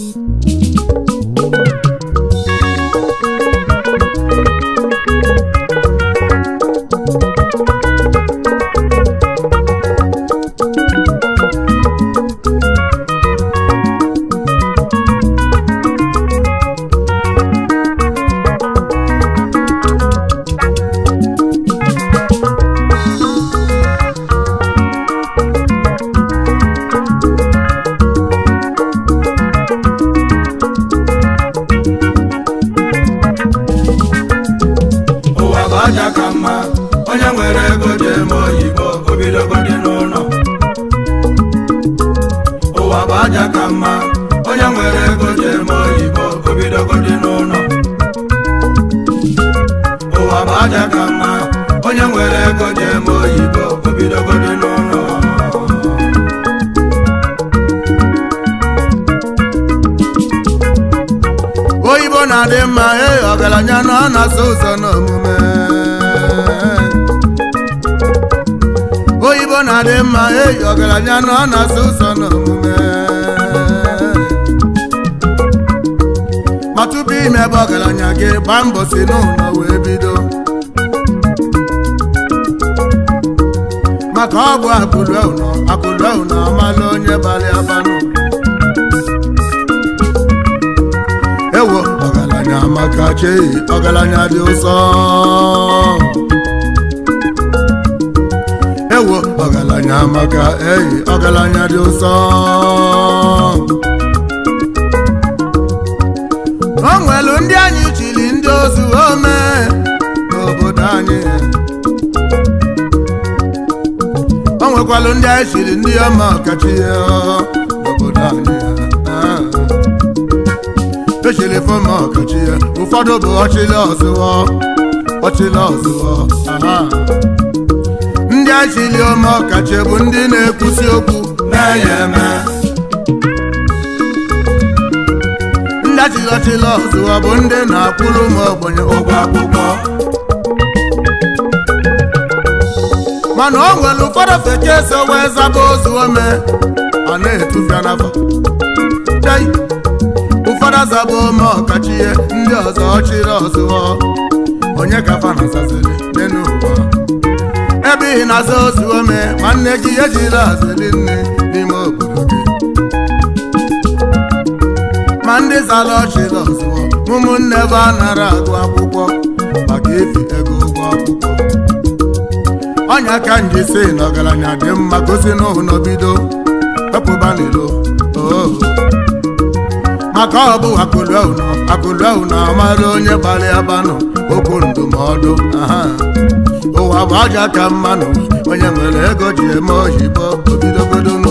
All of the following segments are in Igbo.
Thank you. n'anya dị ụsọ o nwelu ndị anyị ndị ozu ome n'obodo anyị o nwekwalụ ndị anyị ndị ọkachi n'obodo anyị e ọkachi ya ụfọdụ bụ ndị ndị achịli ọkachi bụ ndị na-ekwusi okwu ha ya ndị achịlọchịlọ ọzụ ọ bụ ndị na-akwụrụ m ogbenye ụgwọ akwụkwọ mana o nwere ụfọdụ feke so wee zaba ozu ome ọ na-etufia n'afọ ụfọdụ azaba ome ọkachie ndị ọzọ ọchịrị ọzụọ onye ka fa nazaziri n'elu ụwa ebe ị na-aza ozu ome nwanne gị ejiri azili nne ma ndị ọchị Jizọs ụmụnne ebe a nara agụ akwụkwọ maka efi ego ụgwọ akwụkwọ ọnya ka nji si na ọgaranya dị mma gosi n'ụhụ n'obido oh. maka ọ bụ akụlụahụ na amara onye gbara ya banụ okwu ndụmọdụ ụwa bụ aja ka mmanụ onye nwere ego ji eme obidogodo obidogodonu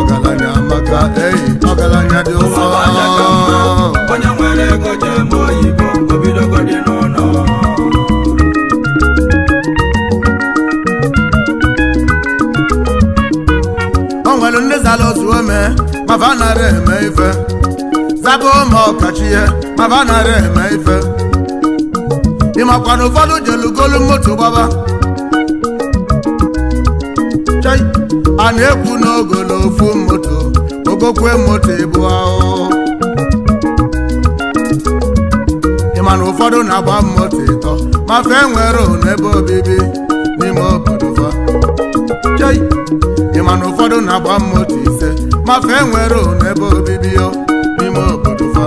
ka eyi ọgaranya dị ụfọ onye nwere ego jee mụọ oyibo obidogo dị n'ụlọ o nwere ndị zara otu ome mafa nara eme ife zaba ụmụ ọkachi ihe mafa nara eme ife Ị ịmakwa na ụfọdụ jelugolu moto gbaba a na-ekwu n'ogo na ofu moto ogokwe moto ebu ahụ ịma na ụfọdụ na-agba moto ịtọ mafe nwere ebe obibi n'ime obodo fa ịma na ụfọdụ na-agba moto ise mafe nwere ebe obibi n'ime obodo fa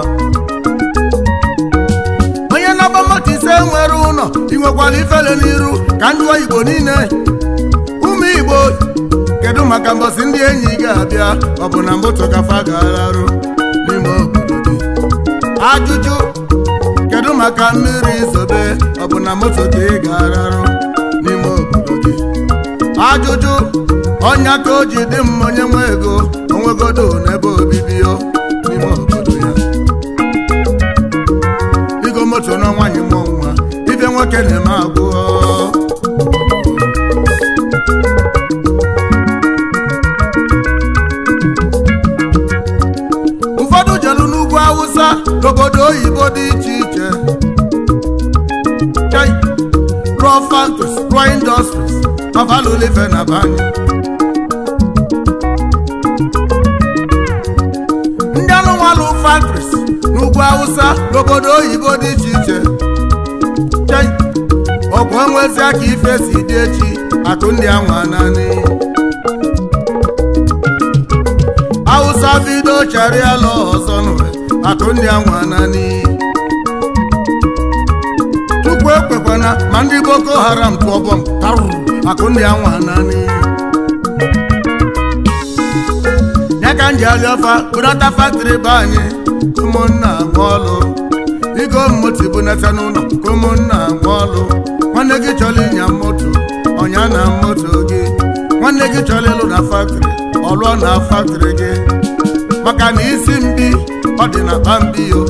onye na-agba moto ise nwere ụlọ ị ifele n'iru ka ndị Igbo niile ụmụ Igbo maka mbọsị ndị enyi ga-abịa ọ bụ na mbụtụ ga-alarụ n'ime obodo gị ajụjụ kedu maka mmiri zobe ọ bụ na moto gị ị ga n'ime obodo gị ajụjụ ọnya ka o ji dị mma onye nwe ego onwegodo n'ebe obibi n'ime obodo ya igo moto n'ọnwa nwa ibe nwoke na-eme agwụ oyibo dị iche iche raw factories raw industries avalolive na be anyị ndị anụnwalụ factories n'ugwu awụsa n'obodo oyibo dị iche iche ọgwụ enwezi aka ife si dị echi atụ ndị anwa naanị awụsa bido charịala ọzọ akụ ndị anwa naanị tupu ekwekwana ma ndị boko haram kpọbọm tarụrụ akụ akụndị anwa naanị ya ka m ji alịọfa bụnata faktịrị be anyị ụmụnna nwaọlụ igo moti bụnata n'ụlọ ka ụmụnna nwaọlụ nwanne gị chọrọ ịnya moto ọnya na moto gị nwanne gị chọrọ ịlụ na faktịrị ọlụọ na faktịrị gị maka na isi mbi ọ dị na pambiyo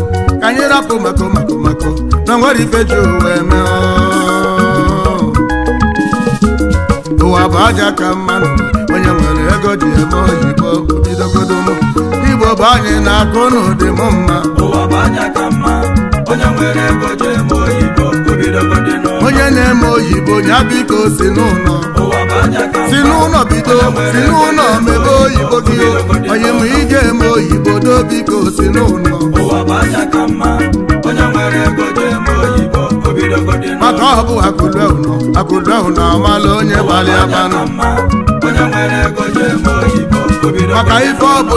ka anyị rapụ mako mako mako na nwere ife ji wee mee ụwa bụ aja ka mma onye nwere ego dị eme oyibo bidogodo m igbo bụ anyị na-akụ n'ụdị m mma ụwa bụ aja ka mma onye nwere ego dị eme oyibo bidogodo onye na-eme oyibo ya biko si n'ụlọ si n'ụlọ bido si n'ụlọ mebe oyibo gị onye ma ije eme oyibo do biko si n'ụlọ maka ọ bụ akụlụnọ akụlụnọ na-amala onye gbalị abanụ maka ife ọ bụ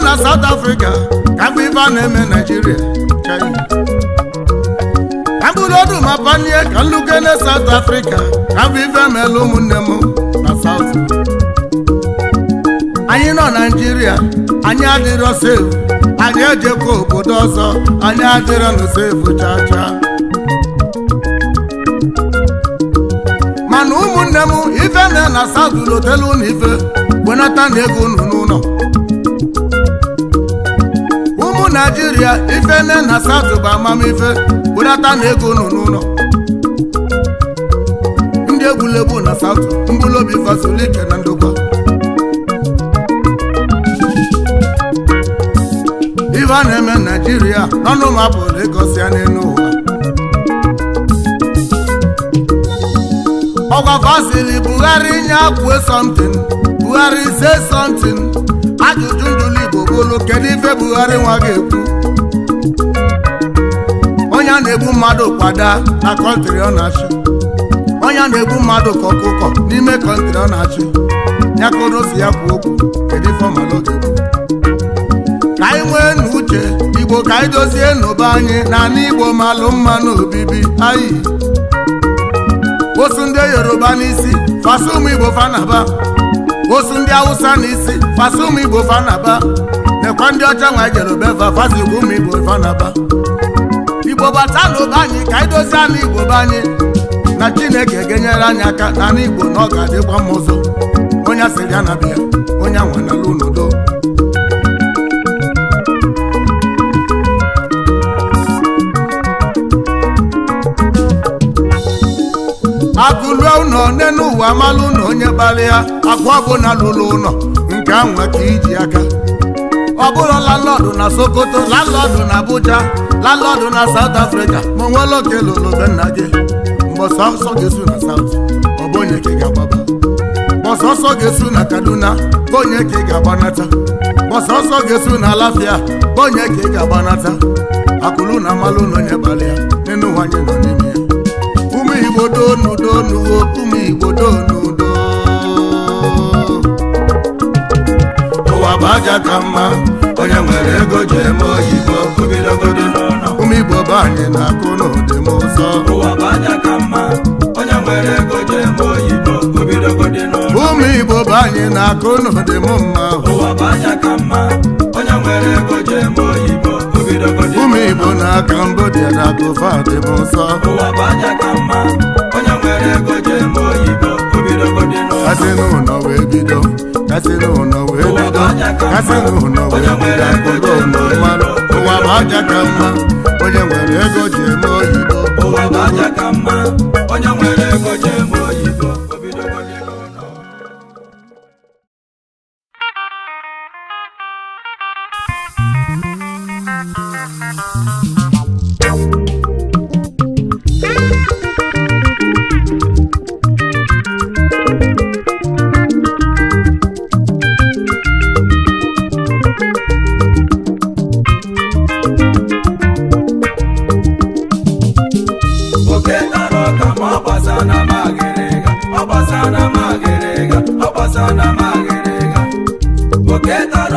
na na South Africa ka mgbe ibe a na-eme Nigeria China ka mgbe ma na South Africa ka mgbe ibe emeela ụmụnne m na South anyị nọ Nigeria anyị adịrọ sefu anyị ejekwa obodo ọzọ anyị adịrọ na sefu chaa chaa mana ụmụnne m ife na na South lotelu na ife na ego naijiria nne na satụ bụ amamife budata na ego nọ n'ụlọ ndị egwuregwu na satụ mbulobi fasolike na ndokwa ife a na-eme naijiria n'ọnụmapụ na-egosi ya n'elu ụwa ọgwa fasili buhari nye akwe something buhari say something ajụjụ kedu ife Buhari nwa ga-ekwu onye a na-egbu mmadụ kwada na kọntịrị ọ na-achụ onye a na-egbu mmadụ kọkụkọ n'ime kọntịrị ọ na-achụ ya ka odosi ya kwuo okwu kedu ife ọmala ga-ekwu ka anyị nwee uche igbo ka anyị dozie n'obe anyị na n'igbo igbo malụ mma n'obibi osu ndị hausa n'isi ụmụ igbo fanaba ọkọ ndị ọcha nwa e jere obefa fasikwa ụmụ igbo fanaba igbo bata n'ụba anyị ka anyị dozie ala igbo be anyị na chineke ga-enyere anyị aka na ala igbo na ọ ga-adịkwa mma ụzọ onye asịrị ya na bịa onye anwanala unudo akụlue ụlọ nne ụwa amalụ ụnọ onye gbalịa akụ ọbụla lụrụ ụnọ nke anwa ka iji aka ọbụrụ bụrụ landlọdụ na sokoto landlọdụ na abuja landlọdụ na saut afrịka ma onwe lokelolobe nna gị mgbe sọsọ ga-esu na saut ọ bụ onye ka ị ga-agbaba mgbe sọsọ ga-esu na kaduna bụ onye ka ị ga-agbanata mgbe sọsọ ga-esu na alafia bụ onye ka ị ga-agbanata akụlụ na amalụ na onye gbalị ya n'enu nwanyị nọ n'ime ya ụmụ igbo donu donu ụmụ igbo donu donu ụwa aja ka mma onye nwere ego ji eme oyibo obidogodo ụmụ igbo bụ anyị na-akụ n'ụdị m ụzọ ụwa bụ aja ka mma onye nwere ego eme oyibo ụmụ igbo anyị na-akụ n'ụdị m mma ụwa bụ aja ka mma ụmụ igbo na kambodia na dị m n'ụlọ wee bido kazinụlọ wee wee bido ụlọ ụwa bụ aja ka mma onye nwere ego ji oyibo ụwa bụ aja ka mma onye nwere ego ji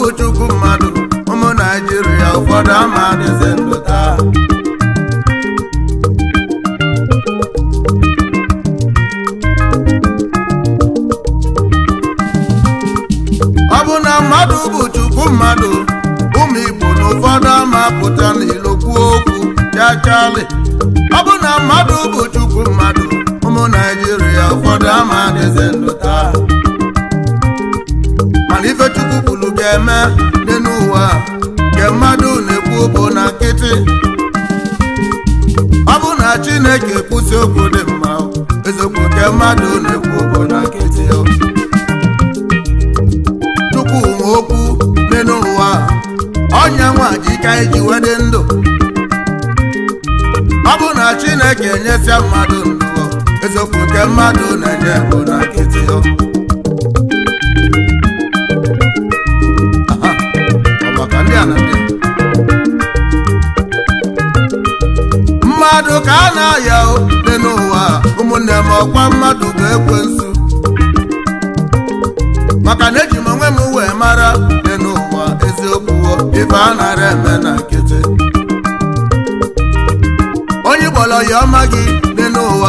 bụ chukwu mmadụ ụmụ naijiria ụfọdụ ama adịzi ụwa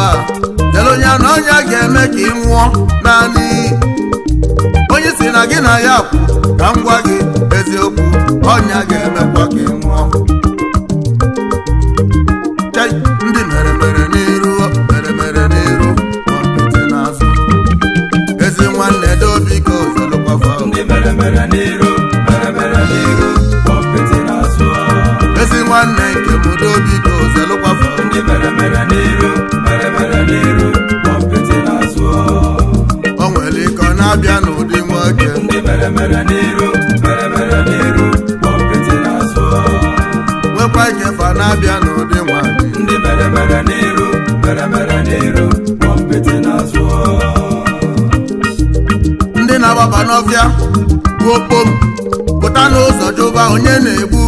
lele onye na ọnya ga-eme ka ị nwụọ naanị onye si na gị na ya kwụ ka m gwa gị eziokwu ọnya ga eme ka ị nwụọ ndị mere mere n'iru mere mere n'iru n'azụ ezi nwanne dobiko zelụkwafa ndị mere mere ezi nwanne nke ndị mere na-abịa n'ụdị nwoke nwekwa nyefe na-abịa n'ụdị nwanyị ndị na-agbaba n'ọfịa okpom pụta n'ụzọ jụba onye na-egbu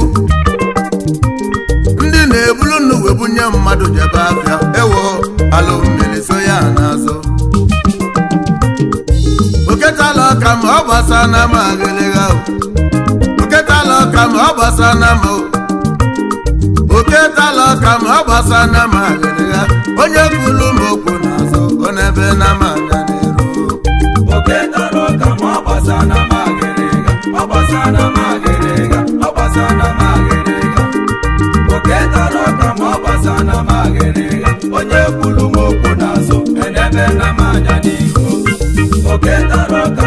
ndị na-ebulu nnu webunye mmadụ jebe afịa ewo ala ọgbasa na ama gịlịgha oketala ọka ma ọgbasa na ama oketala ọka ma ọgbasa na ama gịlịgha onye kwulu ma okwu n'azụ ọ n'ebe na ama aga n'iru oketala ọka ma ọgbasa na ama gịlịgha ọgbasa na ama gịlịgha ọgbasa na ama gịlịgha oketala ọka ma ọgbasa na ama gịlịgha onye kwulu ma okwu n'azụ ọ n'ebe na ama aga n'iru oketala ọka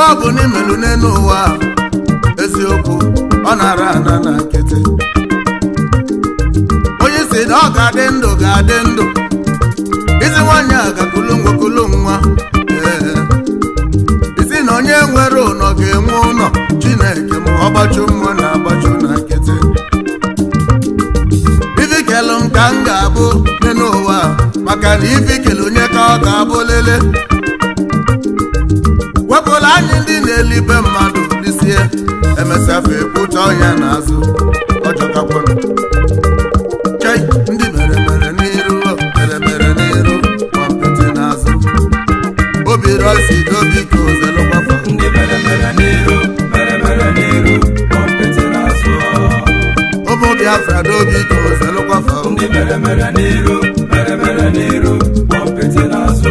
ife ọ bụ n'imelu n'elu ụwa eziokwu ọ na-ara ana na nkịtị onye si na ọ ga-adị ndụ ga-adị ndụ isi nwanyị a gakulu ngwakulu nwa isi na onye nwere ụnọ ga-enwe ụlọ chineke ma ọ nwa na agbachu na nkịtị ibikelụ m ka m ga-abụ n'elu ụwa maka na ibikele onye ka ọ ga-abụ lele ejidela ibe mmadụ lisie emesafe kpụcha ọhịa n'azụ ọjọkakwanụ chei ndị mere mere n'iru mere mere n'iru kọmpiti n'azụ obi rọsi dobi ka ozelụgbafa ndị mere mere n'iru mere mere n'iru kọmpiti n'azụ ụmụ biafra dobi ka ozelụgbafa ndị mere mere n'iru mere mere n'iru kọmpiti n'azụ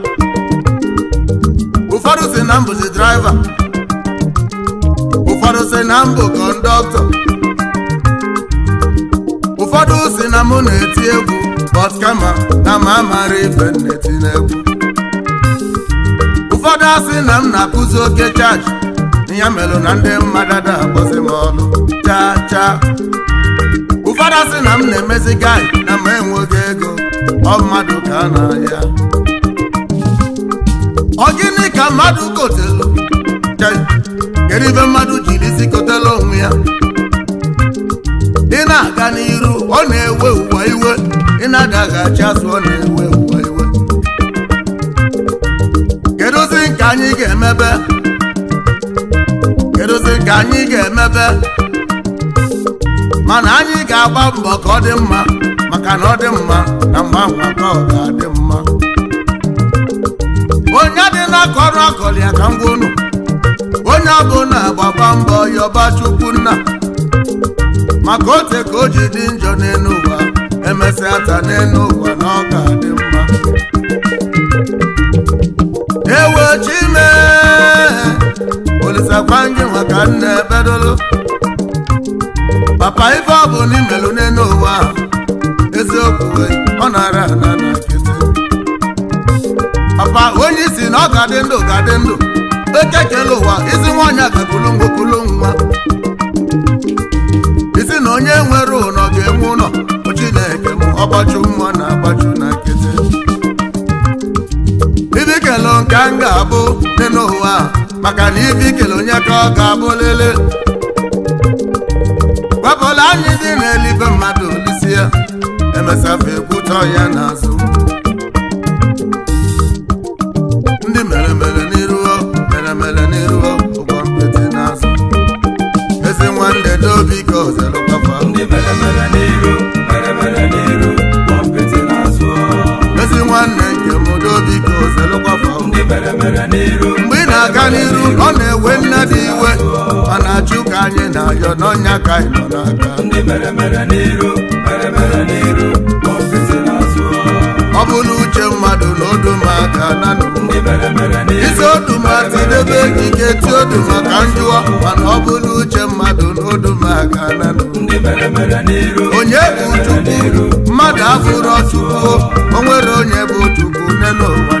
ụfọdụ si na mbụzi draịva ụfọdụ si na mbụ kọndọktọ ụfọdụ si na mụ na-eti egwu bọt kama na m amara ife na-eti n'egwu ụfọdụ asị na m na-akụzi oke chaji ya melụ na ndị mmadụ da akpọzi m ọnụ chaa chaa ụfọdụ asị na m na-emezi gaị na ma enweghị ego ọ mmadụ ka n'ahịa. na ọ gịnị ka mmadụ kotelu kedu ibe mmadụ jiri isi kotelu onwe ya ị na-aga n'iru ọ na-ewe ụwa iwe ị na agaghachi azụ ọ na-ewe ụwa iwe kedụzi nke anyị ga-emebe kedụzi nke anyị ga-emebe mana anyị ga-agba mbọ ka ọ dị mma maka na ọ dị mma na mgbe ahụ ọ ga-adị akọrọ ya ka m onye unu onye ọbụla gbakwa mbọ yọba chukwu nna maka ote ka o ji dị njọ n'elu ụwa emesịa ata n'elu ụwa na ọ ga-adị mma ewe chime olisakwanye maka nna ebedolo papa ife ọ bụ n'imelu n'elu ụwa eziokwu ọ nara ana na papa onye isi na ọ ga-adị ndụ ga-adị ndụ oke kele ụwa isi nwaanyị agakulu isi na onye nwere ụnọ ga-enwe ụlọ chineke m ọgbachu mma na agbachu na nkịtị ibi kele nke m ga-abụ dị n'ụwa maka na ibi kele onye ka ọ ga-abụ lele gwapụla anyị dị n'eluigwe mmadụ olisie emesafe ekwutọ ya n'azụ mgbe ị na-aga n'iru ọ na-ewe nne dị iwe ma na-ajụ ka anyị na-ayọ n'ọnya ka anyị nọ n'aka ọ bụ na uche mmadụ na odumaka nanụ isi odumaka idebe ekike ti odumaka njụọ mana ọ bụ na uche mmadụ na odumaka nanụ onye bụ chukwu mmadụ abụrọ chukwu o nwere onye bụ chukwu nne n'ụwa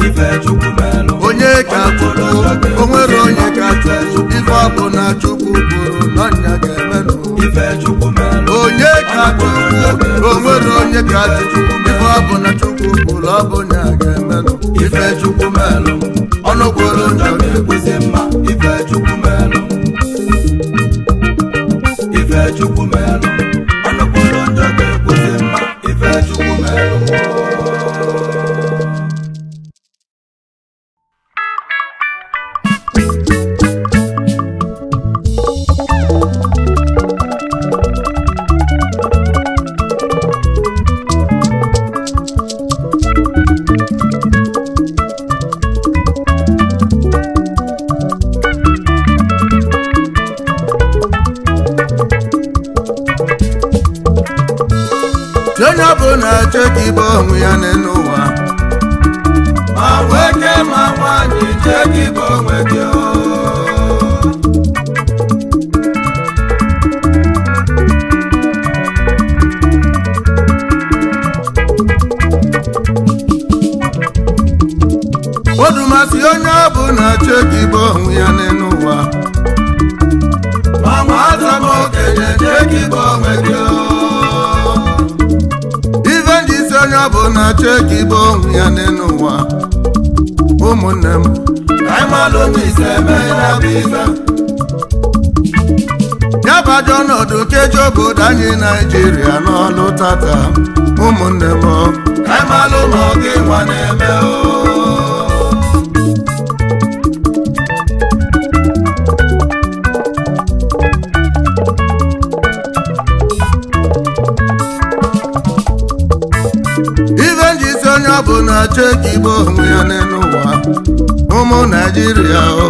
onye ka chukwu o nwere onye ka chukwu ife ọbụ na chukwu bụrụ n'ọnya ga-emenụ onye ka chukwu o nwere onye ka chukwu ife ọbụ na chukwu bụrụ ọbụ na ga-emenụ ife chukwu melụ ọnụ kwuru njọ na-ekwuzi mma ife chukwu melụ ife chukwu melụ na-achọ ekigbo onwe ya n'elu ụwa ụmụ naijiria o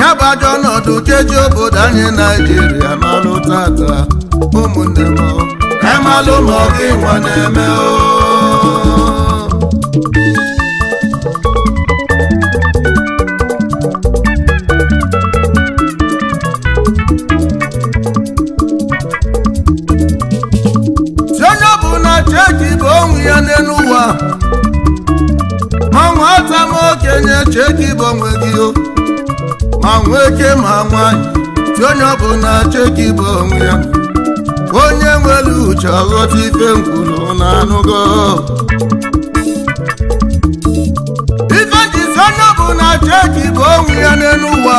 ya bụ ajọ ọnọdụ keji obodo anyị naijiria n'ọlụ tata ụmụnne m anyị malụ ma ọ gị nwa na-eme o onye cheki bụ onwe gị o ma nwee nwoke ma nwanyị ti onye ọbụla cheki bụ onwe ya onye nwere uche ọghọta ife nkwuru na anụgo ife jizi onye ọbụla cheki bụ onwe ya n'elu ụwa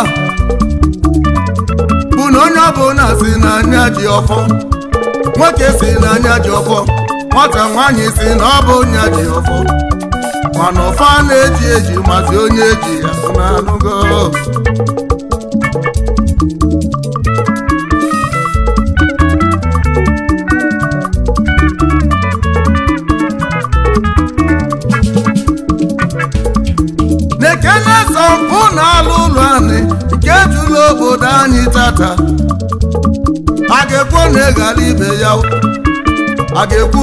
bụ na onye na si n'anya ji ọfọ nwoke si n'anya ji ọfọ nwata nwaanyị si na ọ bụ nya ji ọfọ mana ọfa na-eji eji mazi onye eji ya na-anụgo na-ekene sọmpụ na alụ ụlọ anyị nke jụrụ obodo anyị tata a ga-ekwu na ịghara ibe ya a ga-ekwu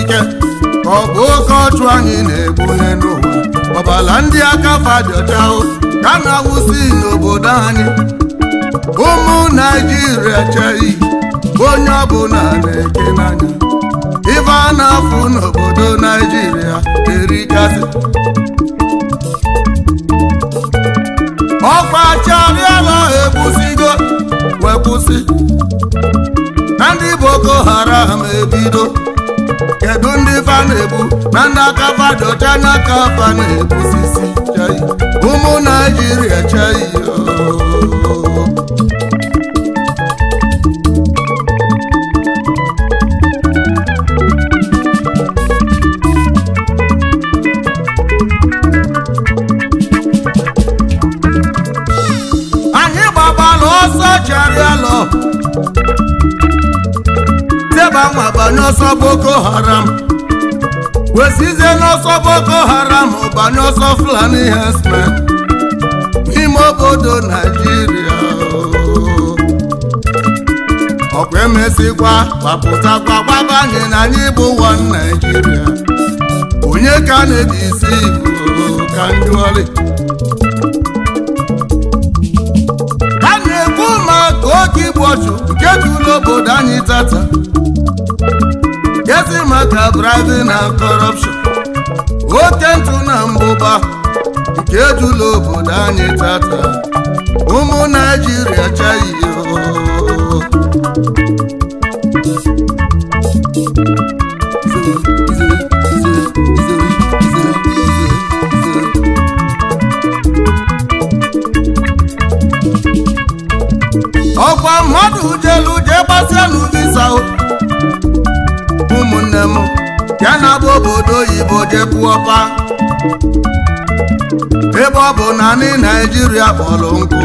ike ọ bụ oke ọchụ anyị na egbu n'ụwa ọbala ndị aka fadịọcha ka na-awụsi n'obodo anyị ụmụ naijiria cheghị onye ọbụla na-eke n'anya ife a na-afụ n'obodo naijiria erikasị ọkwa chabiala ebusigo wepụsị na ndị boko haram ebido kedu ndị fa na-ebu na ndị aka fado n'aka fa na-ebusisi ụmụ naijiria chai oh. ma gba n'ọsọ boko haram wesizie n'ọsọ boko haram ụba ọsọ fulani herdsmen n'ime obodo naijiria ọkwa emesịkwa gbapụtakwa gbabanye na anyị bụ ụwa naijiria onye ka na-eji isi igbo ka njụọli a na-ekwu maka oge igbu ọchụ nke tụrụ obodo anyị tata gezi maka bribing na corruption oke ntụ na mbụba nke ejula obodo anyị tata ụmụ naijiria chaghị ọkwa mmadụ jelu jee gbasịa n'ụdị sao ụmụnne m ya na-agba obodo oyibo jekwuọpa ebe ọ bụ naanị naijiria kpọrọ nkụ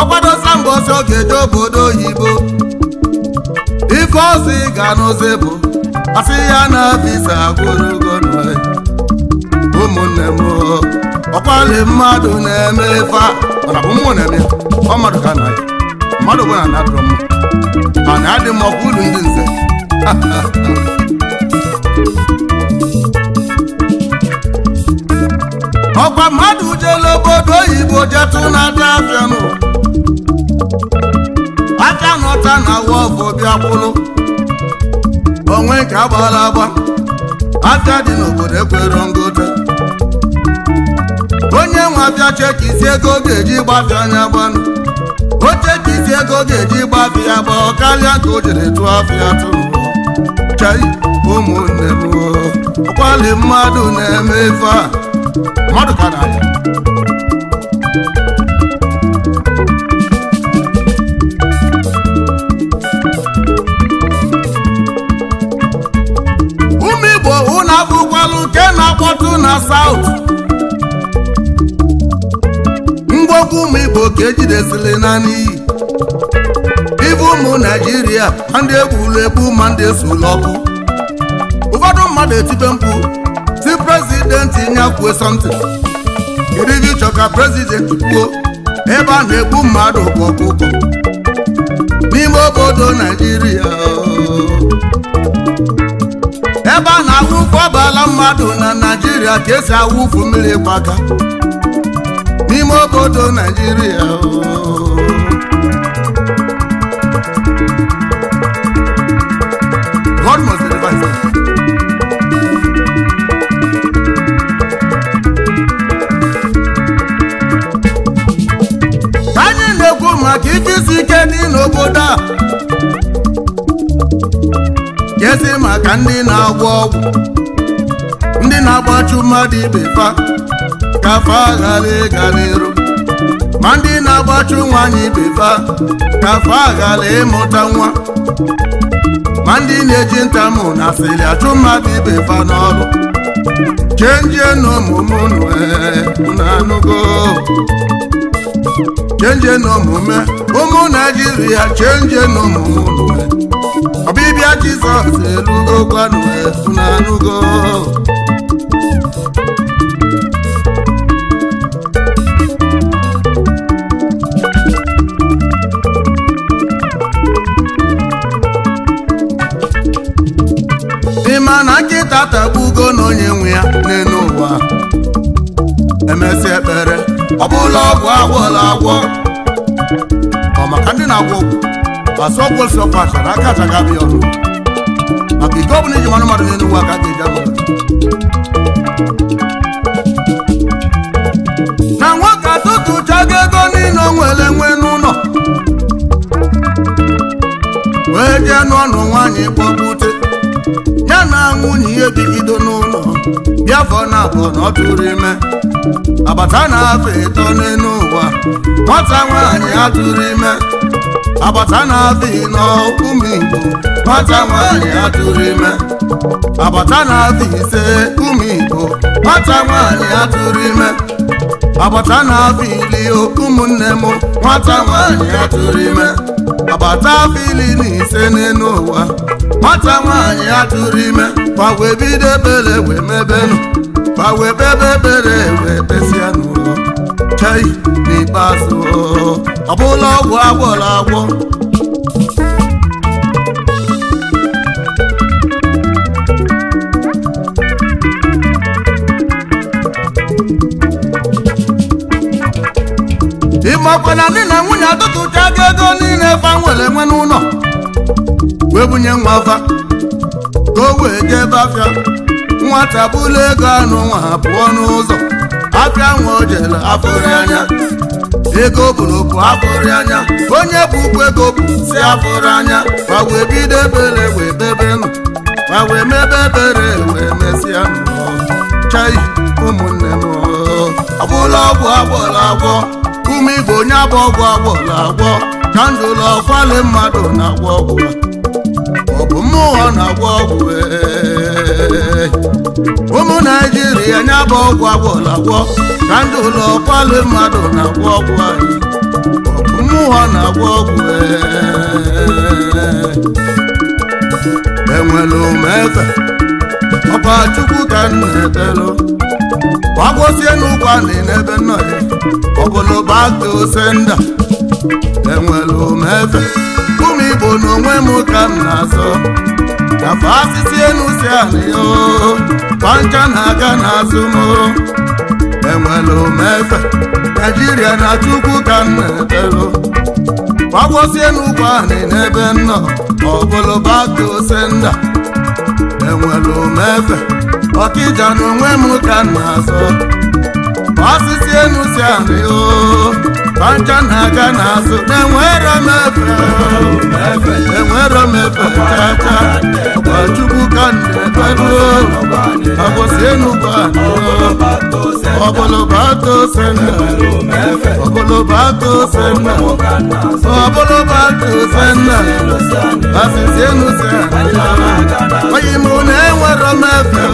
ọkwadosa mgbe ọsọ ga-eje obodo oyibo ife ozi ga n'ozi bụ asị ya na visa e. ụmụnne m ọkwali mmadụ na-eme ọ na bụ mmụọ ọ mmadụ ka na ya mmadụ bụ na mana adị m ọkwa ulu ndị nze ọkwa mmadụ jela obodo oyibo jetụ na-ata afịa nụ aka n'ọta na wọfụ bịakwụlụ onwe nke agbala agba aka dị n'obodo Ekwere ngote onye nwe abịa cheki isi ego ga-eji gbafịa anya gbanụ oche ka ego ga-eji gba ya bụ karịa ka o jere tụọ afịa tụrụ chai ụmụnne m ọkwali mmadụ na-eme ife a mmadụ ka na ụmụ igbo ụnụ abụkwalụ nke na-akpọtụ na saut ọgụ ụmụ igbo ka ejidesili naanị iyi ụmụ naijiria ma ndị egburu egbu ma ndị esula ọkụ ụfọdụ mmadụ etibe mkpu si prezidenti nye kwuo sọmtin kedu ka prezidenti kwuo ebe a na-egbu mmadụ bụ ọkụkọ n'ime obodo naijiria ebe a na-awụfu abala mmadụ na naijiria ka esi ụfụ mmiri gbaga n'ime obodo Naijiria anyị na-ekwu maka ijisi ike dị n'obodo a jezi maka ndị na-agwọ ọgwụ ndị na-agbachu mmadụ ibe fa ka afọ aghara ịgarịrụ ma ndị na-agbachu nwaanyị befa ka afọ aghara ịmụta nwa ma ndị na-eji ntamụ na asịrị achụ mmadụ ibefa n'ọrụ chenjie n'omume unu e, na-anụgo chenjie n'omume e, ụmụ naijiria chenjie n'omume unu e. ọbịbịa jizọs erugo gwanụ na-anụgo katagbugo na onye nwe ya n'elu ụwa emesi ekpere ọ bụla ọgwụ agwọla agwọ ọ maka ndị na-agwọ ọgwụ asọkwesị ọpacha na akacha gabi ọrụ maka ike ọbụla iji mmanụ mmadụ n'elu ụwa ka a ga-eji agwọ na nwoke atụtụchago ego niile o nwere nwe n'ụlọ wee jee n'ọnụ nwaanyị kpọgbute na-anwụ na ihe dịgido n'ụlọ biafọ na abụọ na ọ tụrụ ime agbata na-afọ ịtọ n'elu ụwa nwata nwaanyị a tụrụ ime agbata na-afọ ịnọ igbo nwata nwaanyị a ime agbata na-afọ ise ụmụ igbo nwata nwaanyị a ime agbata na-afọ ili ụmụnne m nwata nwaanyị a ime agbata afọ ili na ise n'elu ụwa nwata nwaanyị ya tụrụ ime gbawe bido ebere wee mebenụ gbawe bebe ebere wee besịa n'ụlọ chei n'ikpeazụ ọ bụla ọgwụ agwọrọ agwọ na dị na nwunye atụtụchago ego niile fa nwere nwe wee bunye nwa afa ka o wee jebe afịa nwata bụla ego anụ nwa ha pụọ n'ụzọ afịa nwa o jere afụrị anya ego bụrụ bụ afụrị anya onye bụ ụkwụ ego bụ si afụrị anya ma wee bido ebere wee bebe nọ ma wee mebe ebere wee mesịa chai ụmụnne m agbụla ọgwụ agbọla agwọ ume igbo onye abụ ọgwụ agbọla agwọ ka ndụlọ kwale mmadụ na-agwọ ọbụla ọ bụ mmụọ na-agwọ ọgwụ ụmụ naijiria nya bụ ọgwụ agwọla agwọ na ndị ụlọ kwalụ mmadụ na-agwọ ọgwụ anyị ọ bụ mmụọ na-agwọ ọgwụ e. enwere umefe ọba chukwu ka m na-ebelụ gbagwosie n'ụkwa na n'ebe nọ ya ọbụlụ bata osenda enwelu m ebe ụmụ igbo na onwe m ka m na-azọ nafa asịsị enu si ala ya kpancha na-aga n'azụ m enwelu m ebe naijiria na chukwu ka m na-ebelu gbagosi n'ugwu anị n'ebe nnọ ọbụlụ bata Senda. nda enwelu m ebe ọkịja na onwe m ka m na-azọ asịsị enu si ala ya Fanta na-aga n'azụ enwero m efe enwero m efe tata ọkpachukwu ka na-ekpedo agbụsị enugba ọbụlụba tosenna ọbụlụba tosenna ọbụlụba tosenna asịsị enuse oyi m na enwero m efe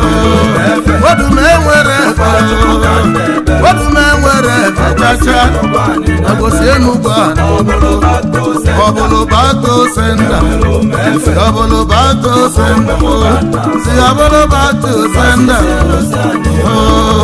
odu m enwere efe obume nwere ebechacha agbụsị enugbu ọbụlụ bato senda ọbụlụ bato senda si ọbụlụ bato senda oh.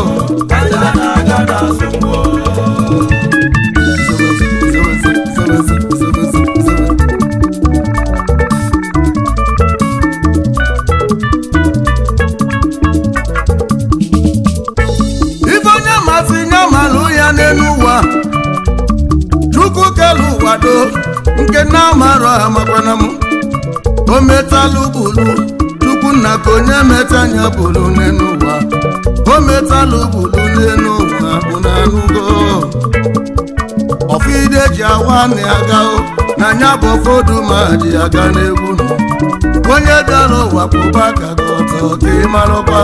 nke na amarọ amakwana m o metalụ bulu tupu nna ka onye meta anya bulu n'ụwa o metalụ bulu n'elu ụwa bụ na anụgo ọfide ji awa na aga na anya bụ ụfọdụ ma ji aga n'egwu onye dara ụwa pụba ka ọtọ ka ị marakwa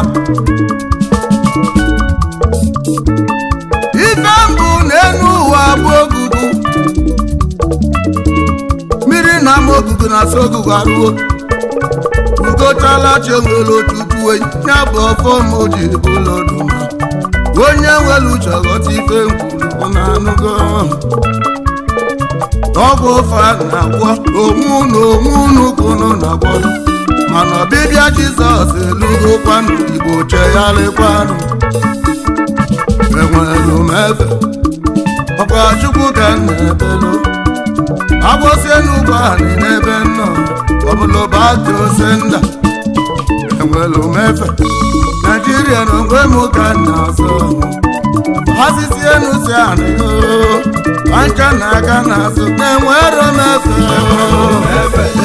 ife mbụ n'elu ụwa bụ ama ogugu na asụ ogugu arụwo ugochala chi onwere otu ukwu ya bụ ọfọ ma o ji bụ ụlọ onye nwere uche ghọta ife nkwuru na anụgo ọgwụ ofe na-agwọ onwe unu onwe unu ka unu na-agwọ mana ọbịbịa jizọs elugo kwanụ igbo chegharịkwanụ enwere m efe ọkwa chukwu ka na-ebelu abụọsielu ụgbọala n'ebe nnọọ ọbụla ụbata ose nda enwere omefe naijiria na ogwe m ka na azụ ha sisi enu si anị na aga n'azụ na enwere omefe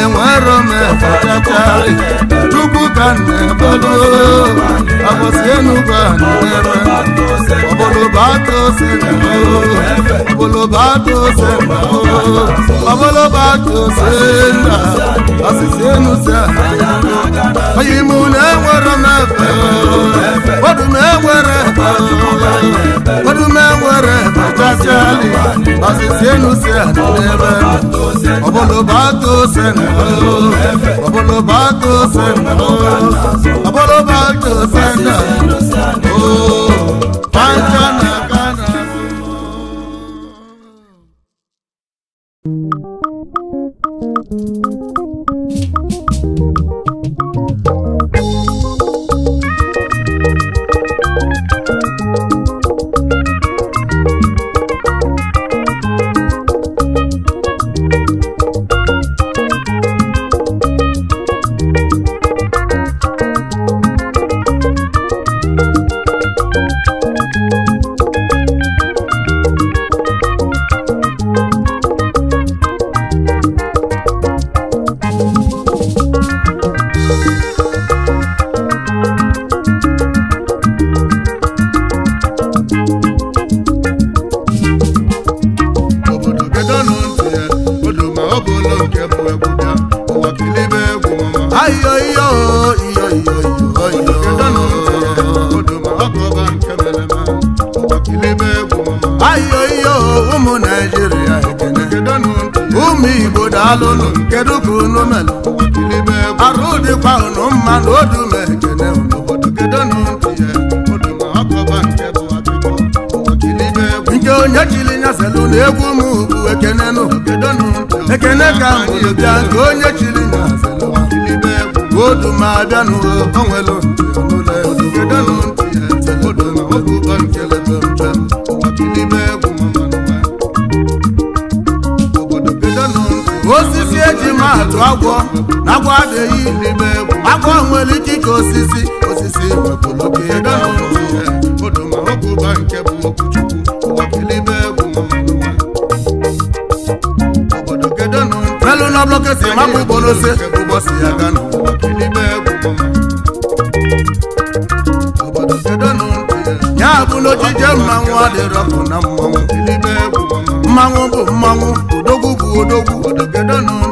enwero m ebechacha tupu ka na-ebado abọsienugo na-ere ọbụlụbatụ ose ọbụlụbatụ ose ọbụlụbatụ ose na asịsienuze oyimu na-enwero m ebe odu na-enwere ebe odu na-enwere ebechachali asịsienuze na ọbọlọba tó sẹ́nu lọ ọbọlọba tó sẹ́nu lọ ọbọlọba tó alụlụ kedu ka unu arụ dịkwa unu mma na odume ekene unu kedo na nke onye chiri nyaselụ na egwu m ekene nụ ekene ka bịa nke onye chiri odu na-atụ agwọ na agwọ adịghị n'ime egwu agwọ nwere ike ike osisi osisi wepụloke nke bụ okwuchukwu na blọketi mapụ bụ n'ojije mmanwụ na mmanwụ mmanwụ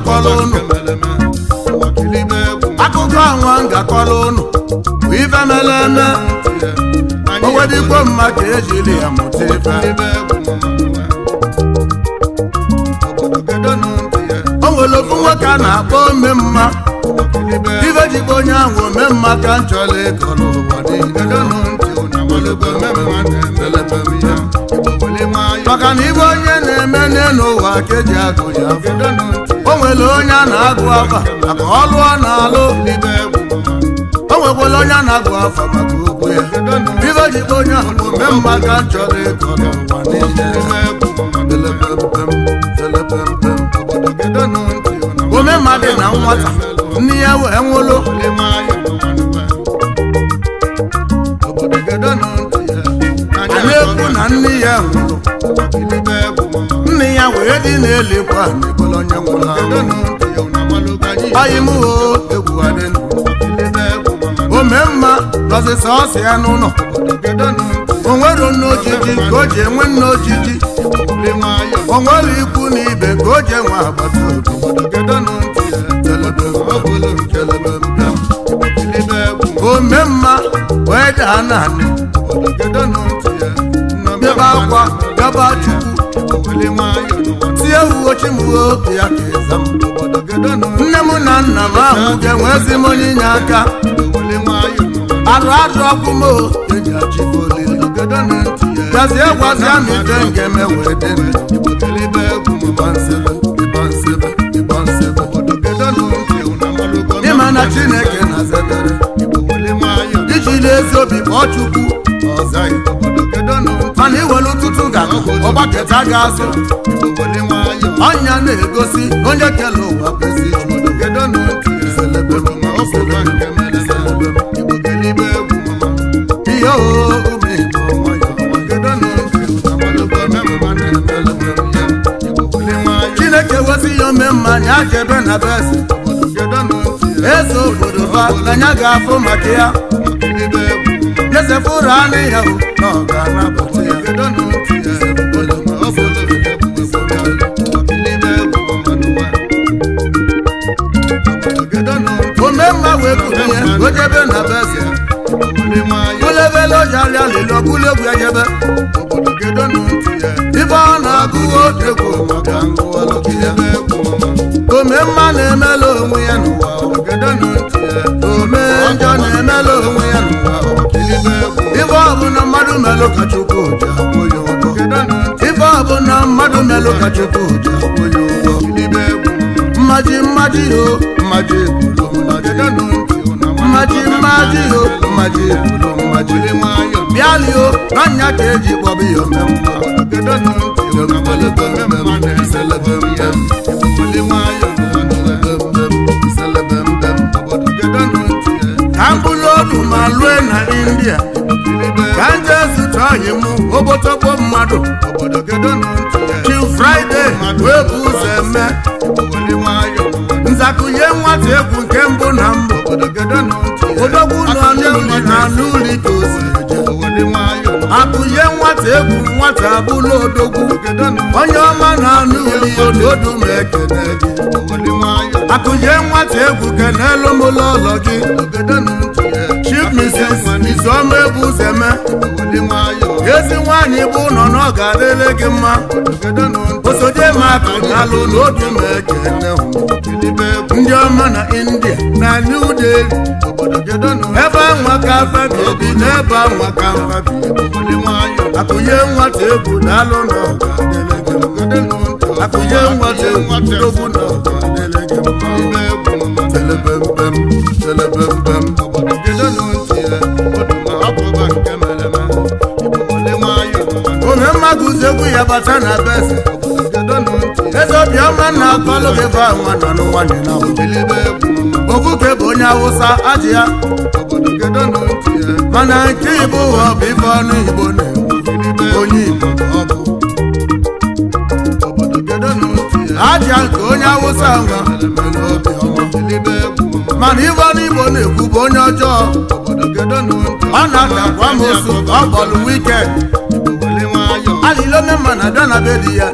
ngakọla akụkọ anwa ngakọla unu bụ ife mere eme owedigbo mma ka ejiri ya mụta ife o nwere ofu nwoke a na-akpọ ome mma ife jikwa onye ahụ ome mma ka m chọrọ ịkọ n'ụwa maka na ibe onye na-eme n'elu ụwa ka e agụ ya nwere onye na-agụ afa maka ọlụ ọ na-alụ n'ime o nwekwara onye a na-agụ afa maka okwu ya ibe jikwa onye ahụ mma ga nchọrọ ịkọ n'ụwa niile ome na nwata nne ya wee nwụrụ na na nne ya nwụrụ ya wee dị na-elekwa ebolo onye nwụla ọyị m o egwu adịnụ ome mma gọzisa ọsị ya n'ụlọ o nwere nne ojiji ka o ji enwe nne ojiji o nwere ikwu na ka o ji enwe agbata ome mma wee daa naanị ebe akwa gaba chukwu mmiri nwayọọ tie ugochi m obi ya ka ịza m nne m na nna m ahụ ga-enwezi m onye inye aka arụ arụ ọkụ m eji olili gwazie m dị ịma na chineke na-azadere iji n'ezi obi kpọọ chukwu ọgbaketa ga-azụ ọnya na-egosi onye kele ụwa kwesị ihe chineke wezi ya ome mma akebe na besi ezo obodo ba anya ga-afụ maka ya ezefuru anị ya na ga-anabata ya ojebe na beze olebelojari alilọgụlegwu ejebe ibe ọ na-agụ odegwu maka ome mma na-emela onwe ya n'ụwa ome njọ na-emela onwe ya n'ụwa ibe na mmadụ melụ ka chukwu ya ụgwọ bụ na mmadụ melụ ka chukwu ya mmaji mmaji o oh. mmaji yo mmaji bụrụ mmaji nwayọ bịalio n'anya ka eji kpọba ya omemma ka mkpụrụ ma lue na india ka nje zụta ọyị m obotokpo mmadụ chi fraịde wee bụ ụzọ eme nwata egwu nke mbụ na mbụ nwata egwu nwata bụla odogwu onye ọma na-anụ odu ma ekene gị akụnye nwata egwu kenelu m ụlọ ụlọ gị chief mrs izuọma egwu zeme ezi nwaanyị bụ nọ na ọ ga-adịrị gị mma osoje m akụnalụ na ma na ekene ndị ọma na india na new delhi ebe anwa ka mfabi obi n'ebe ebe anwa ka mfabi akụnye nwata egwu n'alụ nọ akụnye nwata egwu n'ogbu nọ telebembem telebembem onye mmadụ zegwu ya bata na besi eze obiọma na akọlụ gị bụ nwa nọ bụ onye awụsa ajị ya mana nke igbo ụwa bụ ife ọnụ igbo na onye Igbo ọ aja nke onye Awụsa nwa mana ibe n'Igbo na-ekwu bụ onye ọjọọ ọ na-atakwa m osu ọ bọlụ wike alilone mana dana ya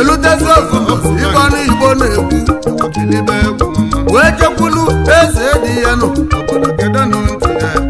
elutezi ofu ibe n'Igbo na-ekwu wee chekwulu eze dị ya nụ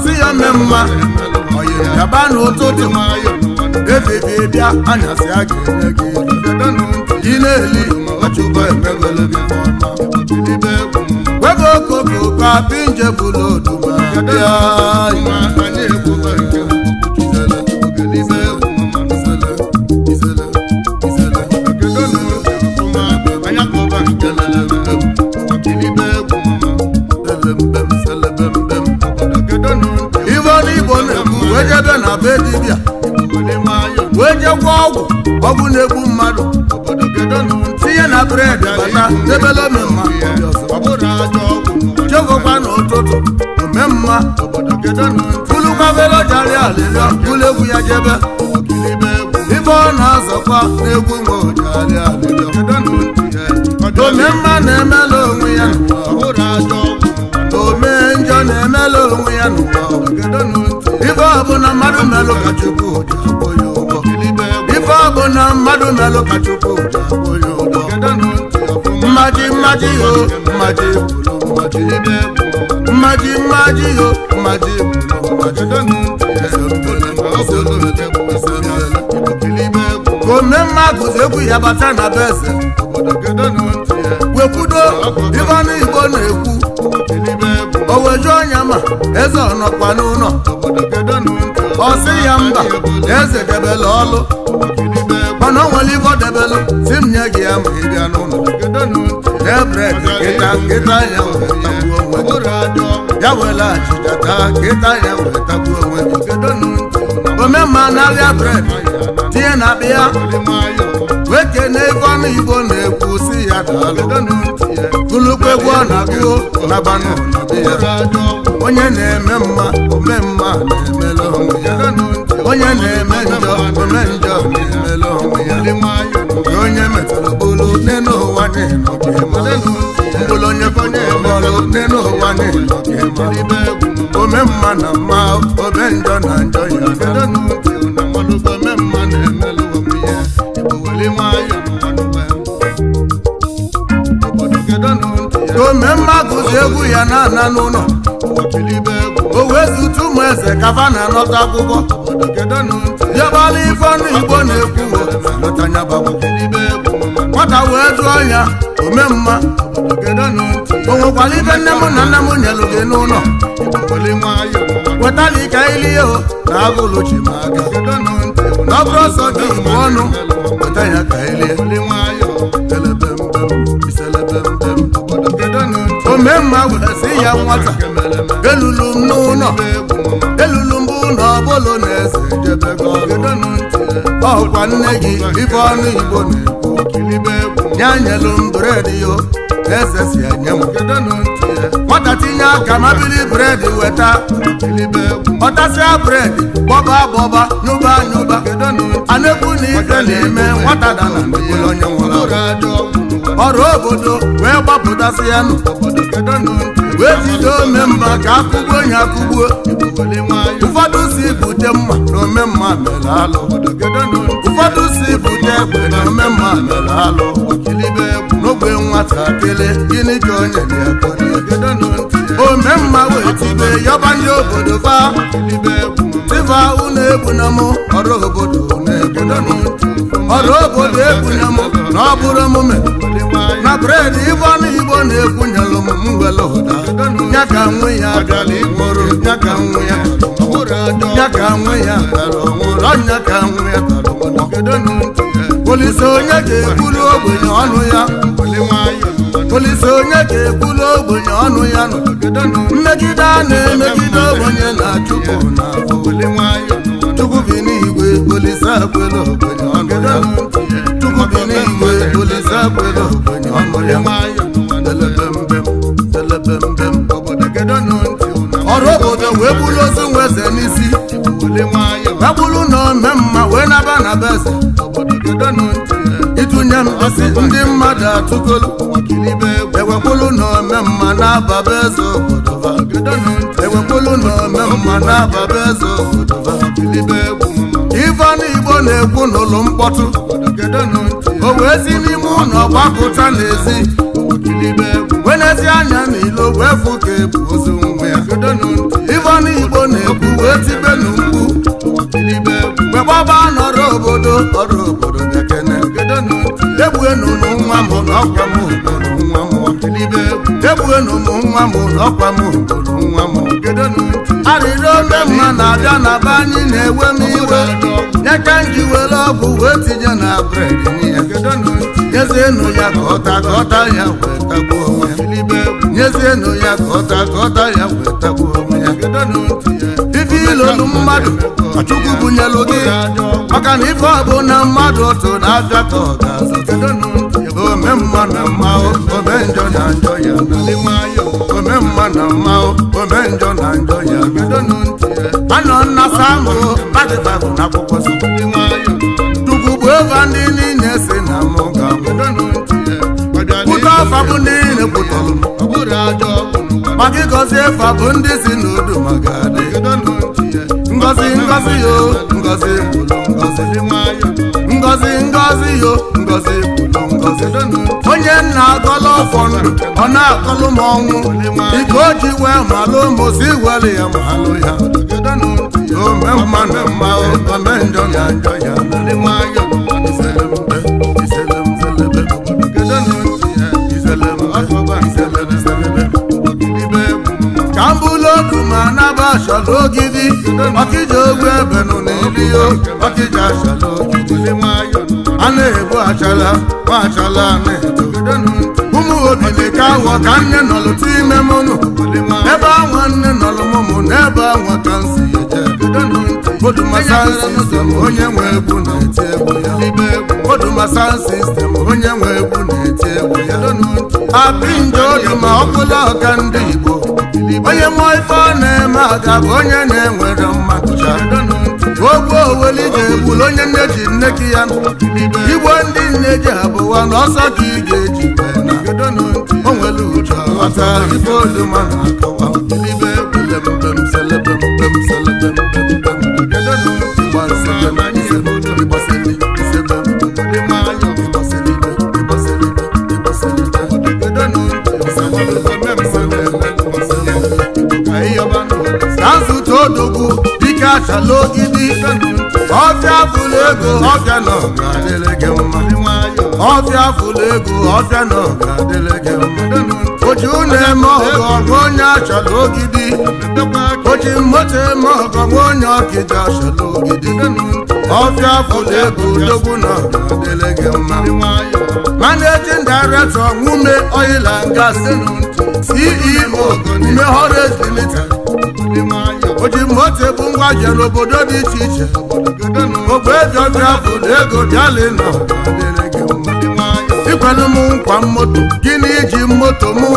asị ya mee mma oyigaba na ụtụ dị nwayọ efebie bịa anyasị a ga-enye gị ị na-eli ọchụkọ emegolo gị wego okoko ka pinje bụloduma bịa be dibịa wee je ọgwụ ọgwụ na-egbu mmadụ tinye na bred bata debele mma. jegokwa n'ụtụtụ omemma tulukwabelojariala bulu egwu ya jebe ibe ọ na-azọkwa n'egwu mgbe ojariala mma na-emela onwe ya na mmadụ melụ ka Chukwu dị agbọ ya ụgbọ ife ọ bụ na mmadụ melụ ka Chukwu dị agbọ ya ụgbọ mmaji mmaji yo mmaji bụrụ mmaji mmaji mmaji yo mmaji bụrụ mmaji ka ome mmadụ egwu ya bata na be eze wekwudo ife Igbo na-ekwu o wejuo ọnya ma eze ọ nọkwa n'ụlọ ọsị ya mba eze debele ọlụ mana o nwere ife debelụ si m nye gị ya ma ị bịa n'ụlọ debred kịta kịta ya wee onwe ya were ya wee onwe gị omemma bred tinye na akpa ya weke na ego ọnụ igbo na-ekwu si ya daalụ gụlụkwa egwu ọ na na onye na-eme mma ome mma na-emela onwe ya onye na-eme njọ ome njọ na-emela onwe ya nke onye metụrụ bụrụ n'ụwa mkpụrụ onye fọnye emelụ nne n'ụwa ome mma na mma ome njọ na njọ ya na-emelụ onwe ya na ome mma gụzi egwu ya na ana n'ụlọ ezi utu ụmụ eze kafa na-anọta akwụkwọ dịọbala ife ọnụ igbo na-ekwu nwata wee jụọ ya ome mma o nwekwara ife nne m na nna m nyelụ gị n'ụlọ wetala ike ilie o na agụlụchi ma aka na ọ bụrụ ọsọ gị igbo ọnụ weta ya ka ilie ome mma wee si ya nwata elulu m n'ụlọ elulu mbụ ụlọ ọbụlụ na eze jebego ọkwa nne gị ife ọnụ igbo na-ekwu ya nyelu m bred yo na eze si enye m nwata tinye aka ma bili bred weta ọtasia bred bọba bọba nyụba nyụba anekwu na-ekwu na ife na-eme nwata dana ndekụlụ onye nwụrụ ọrụ obodo wee gbapụtasị ya nụ wee jide ome mma ka akụgbuo onye akụgbuo ụfọdụ si bute mma na ome mma mere alụ ụfọdụ si bute egbe na ome mma mere alụ ekele gịnị ka onye na-ekwe ome mma wetibe yọba ndị obodo ba dịba unu egbuna m ọrụ obodo ọrụ obodo egbuna m na ọ bụrụ emume na ịbụ ọnụ igbo na-egbunyelụ m mwere ụda ya ka nwe ya mụrụ ya ka nwe ya ya ka nwe ya ọnyá ka nwe ya polisi onye ga-eburu ogbenye ọnụ ya polisi onye ga-ebulu ogbenye ọnụ ya nọ mmegide a na-emegide ogbenye na chukwu na chukwu bi n'igwe polisi akwela ogbenye ọnụ ya chukwu bi n'igwe polisi akwela ogbenye ọnụ ya ọrụ obodo wee bulu ozu nweze n'isi agbulu na mma wee naba na beze mmadụ atụgolu ewekpolu na ome mma na-ababa eze obodo ewekpolu na ome mma na-ababa eze obodo ifeanụ igbo na-ekwu n'ụlọ mkpọtụ o wee si n'ime ụlọ gbapụta n'ezi wenezi anya n'ilo wee fụ ka ebu ozu nwe ya ifeanụ igbo na-ekwu wee tibe n'ugwu mgbe gbaba nọrọ obodo ọrụ obodo egbuenu nwa m n'ọkwa obodo nwa m ọdịnibe egbuenu obodo ome mma na-abịa na be anyị na-ewe m iwe nyeka were ọgwụ wee tinye na bred nyezienụ ya ka ọta ka ya nyezienụ ya ka ọta ka ya wee tagbuo onwe bunyelu mmadụ chukwu bunyelu gị maka na ife ọbụ na mmadụ otu na-abịa ka ọ ga ome mma na mma ome njọ na njọ ya ome mma na mma ome njọ na njọ ya anọ nna samụ n'akwụkwọ chukwu bụ ndị niile si na mụ ga ọfa bụ ndị ngozi yo ngozi ngozi dị nwayọ ngozi yo ngozi ngozi onye nna akọlọ ọfọ ndụ ọ na-akọlụ m ọnwụ ike o ji wee malụ mozi were ya malụ ya ome mmanụ mma ome njọ na njọ ya dị nwayọ ogidi maka iji ogwe ebenụ na eliyo maka iji achala ogidi a na-egbu achala ma achala na-eto ụmụ ogidi ka aghọ ka nne nọlụtụ ime mụnụ ebe anwa nne nọlụ mụmụ na ebe anwa ka m si eje odumasansistem onye nwe egwu na-eti egwu ya odumasansistem onye nwe egwu na-eti egwu ya apinjo odu ma ọkụla ọka ndị Igbo onye mụọ ife ọ na-eme aga bụ onye na-enwere mma ogwu oweli ga-egbulu onye nne ji nne ki ya igbo ndị nne ji abụwa na ọsọ gị ga-eji onwere uche aghọta ife oluma na-akọwa achala ogidi ọbịa fụlụ ego nọ na ọga adịlị gị mma ọfịa ego na gị mma oji ụlọ eme ọgọ nwa onye ogidi oji moto eme ọgọ nwa onye ọkịja ogidi ọbịa ego gị mma nwume ceo o moto ngwa n'obodo dị iche iche ogbe biafra bụ ego ego bịalina ikwenụ m nkwa moto gịnị iji moto mụ?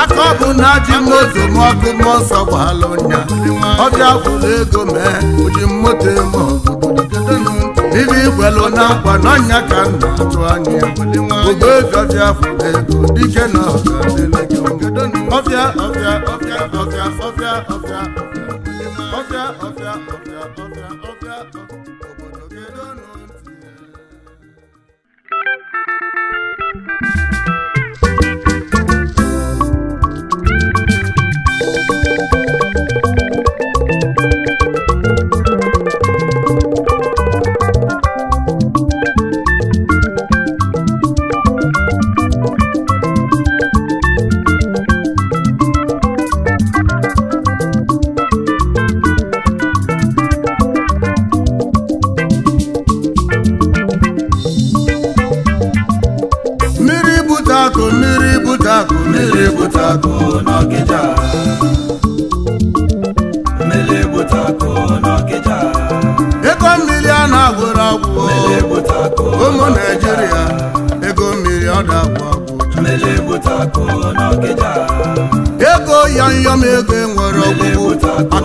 aka ọbụ na ji moto m ọkụ m ụnya ọbịa bụla ego mee ojii ji moto eme na nkwa n'ọnya ka m na-atụ anya ogbe ego dike na ọbịa ọbịa ọ̀fíà ọ̀fíà.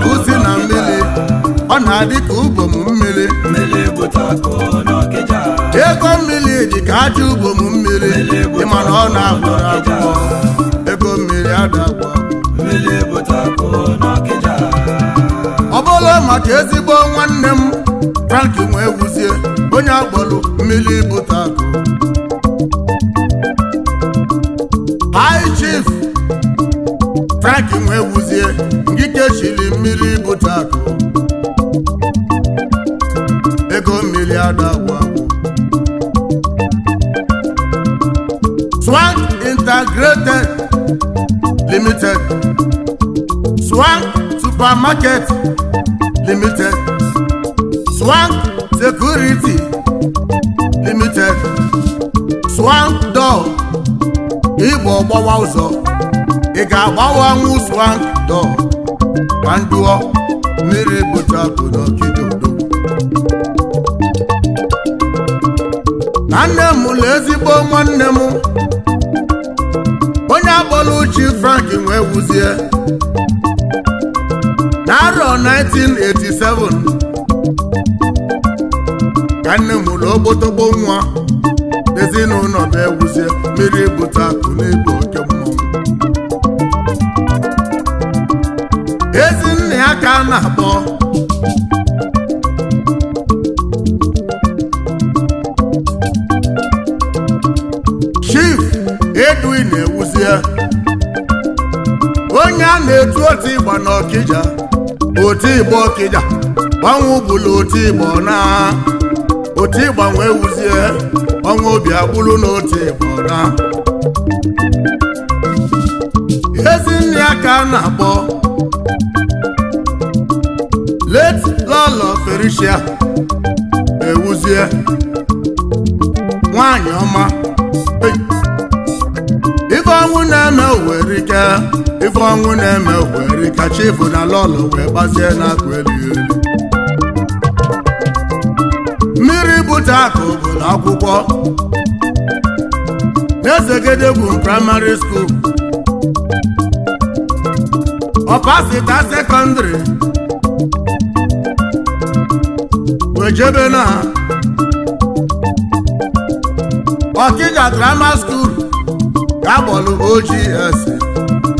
uzi na mmiri ọ na-adị ka ubom mmiri ego mmiri dị ka aja ubom mmiri ịma ọ na-agbọrọ agbọrọ ego mmiri adagbọ ọ bụla maka ezigbo nwanne m tanki nwee wuzie onye agbọrọ mmiri bụta akụ high chief tanki nwee wuzie ndị echiri mmiri bute akụ ego mmiri adagwa Swag Integrated Limited Swag Supermarket Limited Swag Security Limited Swag Door Igbo gbawa ụzọ ị ga-agbawanwu Swag Door ka mmiri bụcha bụ n'okidodo na nne m na ezigbo nwanne m onye akpọla uchi frank nwee wuzie n'arọ 1987 ka nne m ụlọ nwa ezinụlọ e bụ ewuzie mmiri bụta akụ a na-akpọ Chief Edwin Ewuzie onye a na-etu otu ịgba n'Ọkịja otu ịgba Ọkịja gbanwe bụlụ otu ịgba na otu ịgba nwee ewuzie, ọnwa obi agbụrụ n'otu ịgba na a na-akpọ lọlọ Felicia ewuzie nwanyị ọma ife ọnwụ na-eme werike ife ọnwụ na-eme werike chifu na lọlọ wee gbazie n'akụ elu elu mmiri bute akụ bụ na akwụkwọ n'ezegedegwu praịmarị skuul ọpasita sekọndịrị ejebela Ọkija drama school ga-agbọlụ OGS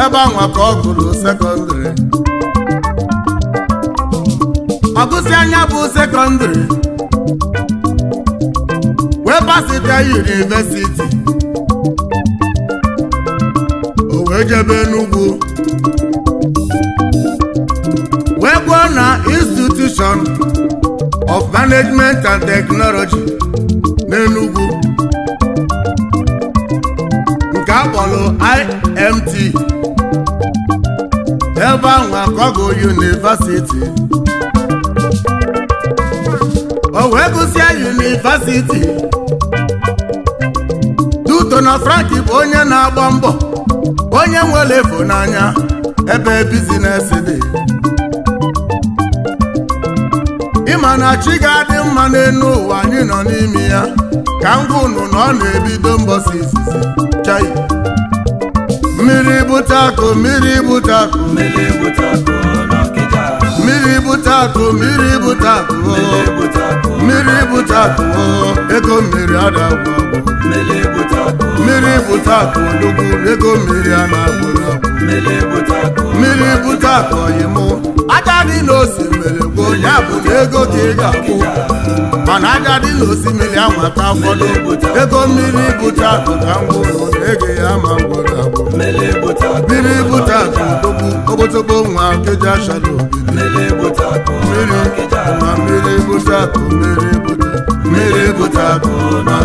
ebe anwa ka ọ gụrụ sekọndịrị ọgụsị anya bụ sekọndịrị webasite pasite yunivesiti o wee jebe n'ugwu wee gbuo na institushọn management and technology n'Enugu nke akpọrọ IMT ebe ahụ akọgo University o wee gụsịa University duto na Frank bụ onye na-agba mbọ onye nwere efu n'anya ebe bizinesi dị ma na chi ga-adị mma n'elu ụwa anyị nọ n'ime ya ka m gụnụ na ọ na-ebido mbọsi izizi chai mmiri bute akụ mmiri bute akụ mmiri bute akụ mmiri bute akụ mmiri bute akụ mmiri bute akụ ego mmiri adagwụ mmiri bute akụ olugwu ego mmiri a na-agwụ mmiri bute akụ ọyịmụ aja dị n'osimiri bụ ya bụ ego ka ị ga-akwụ mana agadi na osimiri amata ụfọdụ ego mmiri bụcha ka mgbụrụ ege ya ma mgbọrọgwụ mmiri bụcha tụtụbụ okpotokpo nwa keja shado mmiri ma mmiri bụcha mmiri bụcha mmiri bụcha ma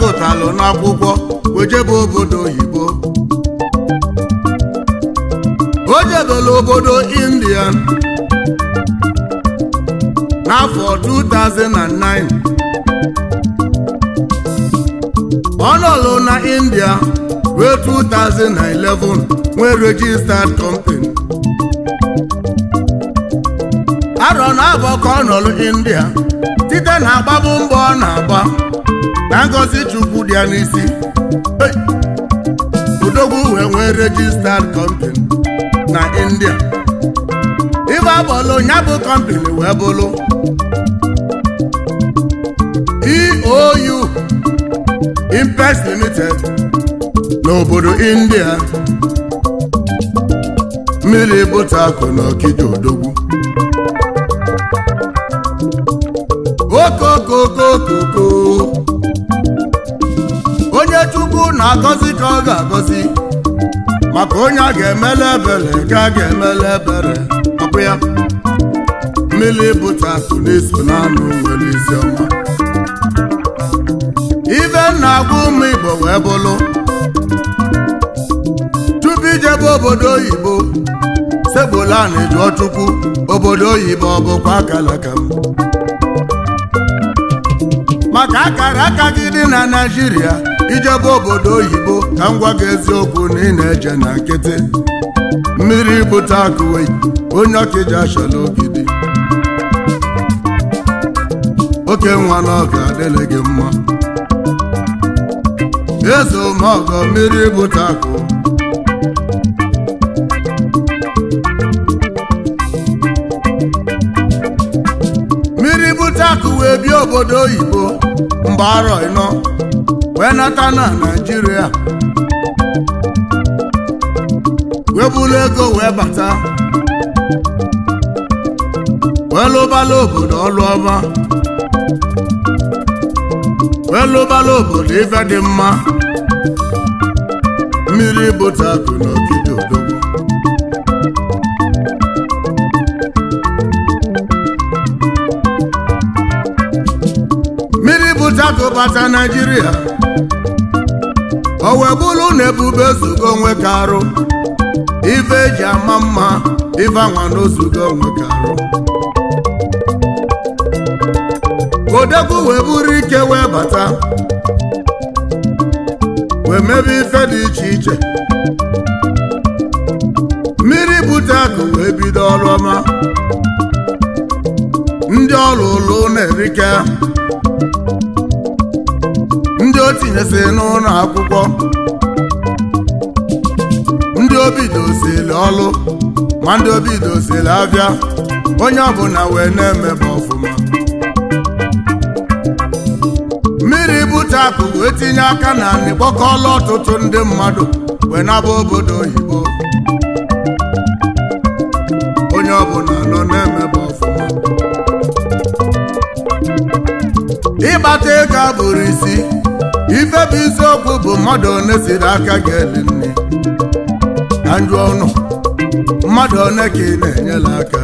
gụtalụ n'akwụkwọ ojebe obodo oyibo o jebela obodo india n'afọ 2009 ọ na india ruo 2011 nwee registered company arọ na abọ ka ọ india site na agbabu mbọ ọ na-agba na ngọzi chukwu dị ya n'isi odogwu wee nwee registered company na india ibe abụlụ ya bụ company wee bụlụ eou impes limited n'obodo india mmiri bụta akụ n'okike okija odogwu okokokokoko chukwu na-agọzi ka ọ ga-agọzi maka onye a ga-emele ebere ka a ga-emele ebere ọbụ ya mmiri bụta so n'iso n'anụ nwere isi ọma ibe na-agwa ụmụ igbo wee bụlụ tupu ijebe obodo oyibo segbola na-ejuọ chukwu obodo oyibo ọ bụkwa akara m maka akara aka gị dị na Naịjirịa ijebe obodo oyibo ka m gwa gị eziokwu na ị na-eje na nkịtị mmiri bute akụwe onye ji achọla ogidi oke nwa n'ọga adịla gị mma eze ọgọ mmiri bute akụ mmiri bute akụ wee obodo oyibo mba arọ ịnọ wee nata na naijiria wee bulu ego wee bata wee lụbala obodo ọlụ ọma wee lụbala obodo ife dị mma mmiri bụta akụ n'ogige odogwu mmiri bụta akụ bata naijiria o wee bụrụ na ebube zugo onwe ka arụ ife eji ama mma ife n'ozugo onwe ka arụ wee buru ike wee bata wee mebe ife dị iche iche mmiri bute akụ wee bido ọrụ ọma ndị ọrụ ụlọ na-erike tinyesi n'ụlọ akwụkwọ ndị obi dozili ọlụ ma ndị obi dozili abịa onye ọbụla wee na-emebe ọfụma mmiri butapụ wee tinye aka na n'ịkpọkọọla ọtụtụ ndị mmadụ wee naba obodo oyibo onye ọbụla nọ na-emebe ọfụma ịkpata ego abụrụ isi ife bụ isiokwu bụ mmadụ one siri aka ga-eli nne na ọnụ mmadụ one ka ị na-enyela aka